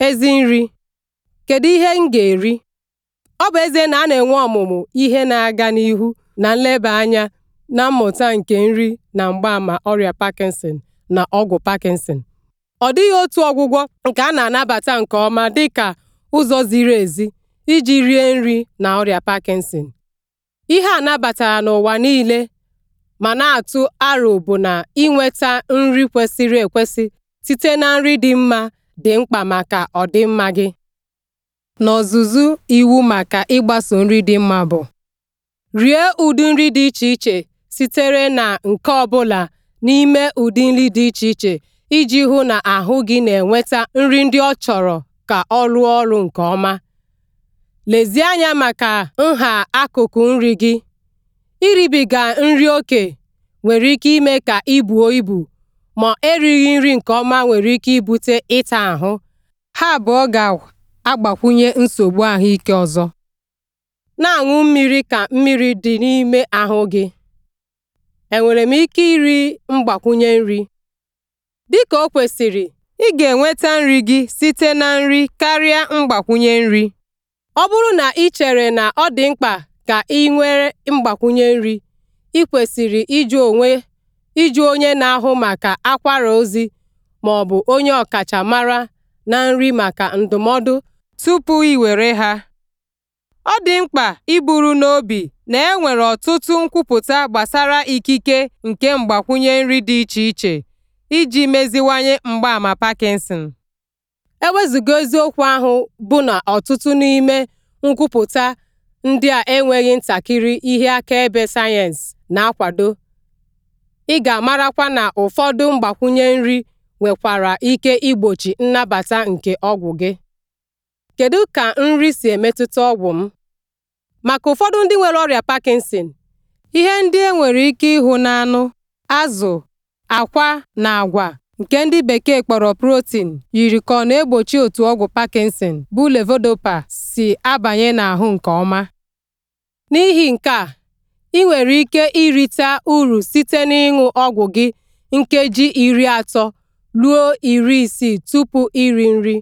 Ezi nri: Kedu ihe m ga-eri? Ọ bụ eze na a na-enwe ọmụmụ ihe na-aga n'ihu na nleba anya na mmụta nke nri na mgbaama ọrịa Parkinson na ọgwụ Parkinson, ọ dịghị otu ọgwụgwọ nke a na-anabata nke ọma dị ka ụzọ ziri ezi iji rie nri na ọrịa Parkinson. Ihe a n'ụwa niile ma na-atụ aro bụ na ịnweta nri kwesịrị ekwesị site na nri dị mma dị mkpa maka ọdịmma gị. N'ọzụzụ iwu maka ịgbaso nri dị mma bụ rie ụdị nri dị iche iche sitere na nke ọ bụla n'ime ụdị nri dị iche iche iji hụ na ahụ gị na-enweta nri ndị ọ chọrọ ka ọ rụọ ọrụ nke ọma. Lezie anya maka nha akụkụ nri gị. Iribiga nri ókè nwere ike ime ka ibuo ibu ma erighị nri nke ọma nwere ike ibute ịta ahụ ha abụọ ga-agbakwunye nsogbu ahụike ọzọ. na-aṅụ mmiri ka mmiri dị n'ime ahụ gị enwere m ike iri mgbakwunye nri? dị ka o kwesịrị, ị ga-enweta nri gị site na nri karịa mgbakwunye nri ọ bụrụ na ị chere na ọ dị mkpa ka ị nwere mgbakwunye nri ị kwesịrị ịjụ onwe ịjụ onye na-ahụ maka akwara ozi ma ọ bụ onye ọkachamara na nri maka ndụmọdụ tupu i were ha. Ọ dị mkpa iburu n'obi na enwere ọtụtụ nkwupụta gbasara ikike nke mgbakwunye nri dị iche iche iji meziwanye mgbaama Parkinson. E wezụga eziokwu ahụ bụ na ọtụtụ n'ime nkwupụta ndị a enweghị ntakịrị ihe akaebe sayensị na-akwado Ị ga-amarakwa na ụfọdụ mgbakwunye nri nwekwara ike igbochi nnabata nke ọgwụ gị. Kedu ka nri si emetụta ọgwụ m? Maka ụfọdụ ndị nwere ọrịa Parkinson, ihe ndị e nwere ike ịhụ n'anụ, azụ, akwa, na agwa nke ndị bekee kpọrọ protein yiri ka ọ na-egbochi otu ọgwụ Parkinson bụ levodopa si abanye n'ahụ nke ọma. N'ihi nke a ị nwere ike irite uru site n'ịṅụ ọgwụ gị nkeji iri atọ ruo iri isii tupu iri nri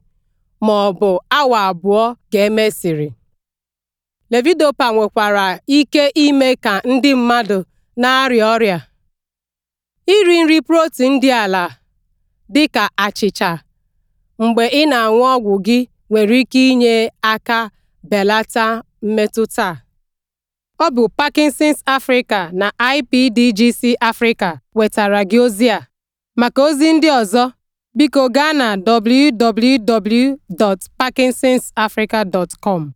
ma ọ bụ awa abụọ ga emesịrị levidopa nwekwara ike ime ka ndị mmadụ na-arịa ọrịa. Iri nri protin dị ala dị ka achịcha mgbe ị na-aṅụ ọgwụ gị nwere ike inye aka belata mmetụta Ọ bụ Parkinson's Africa na IPDGC Africa wetara gị ozi a. Maka ozi ndị ọzọ, biko gaa na www.parkinsonsafrica.com.